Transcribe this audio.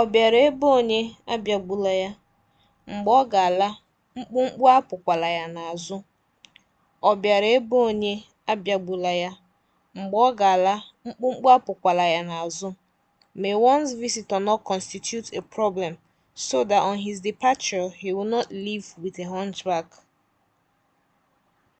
Ọ bịara ebe onye abịagbula ya, mgbe ọ ga-ala, mkpụmkpụ apụkwala ya n'azụ. ya, n'azụ. May one's visitor not constitute a problem, so that on his departure he will not leave with a hunchback.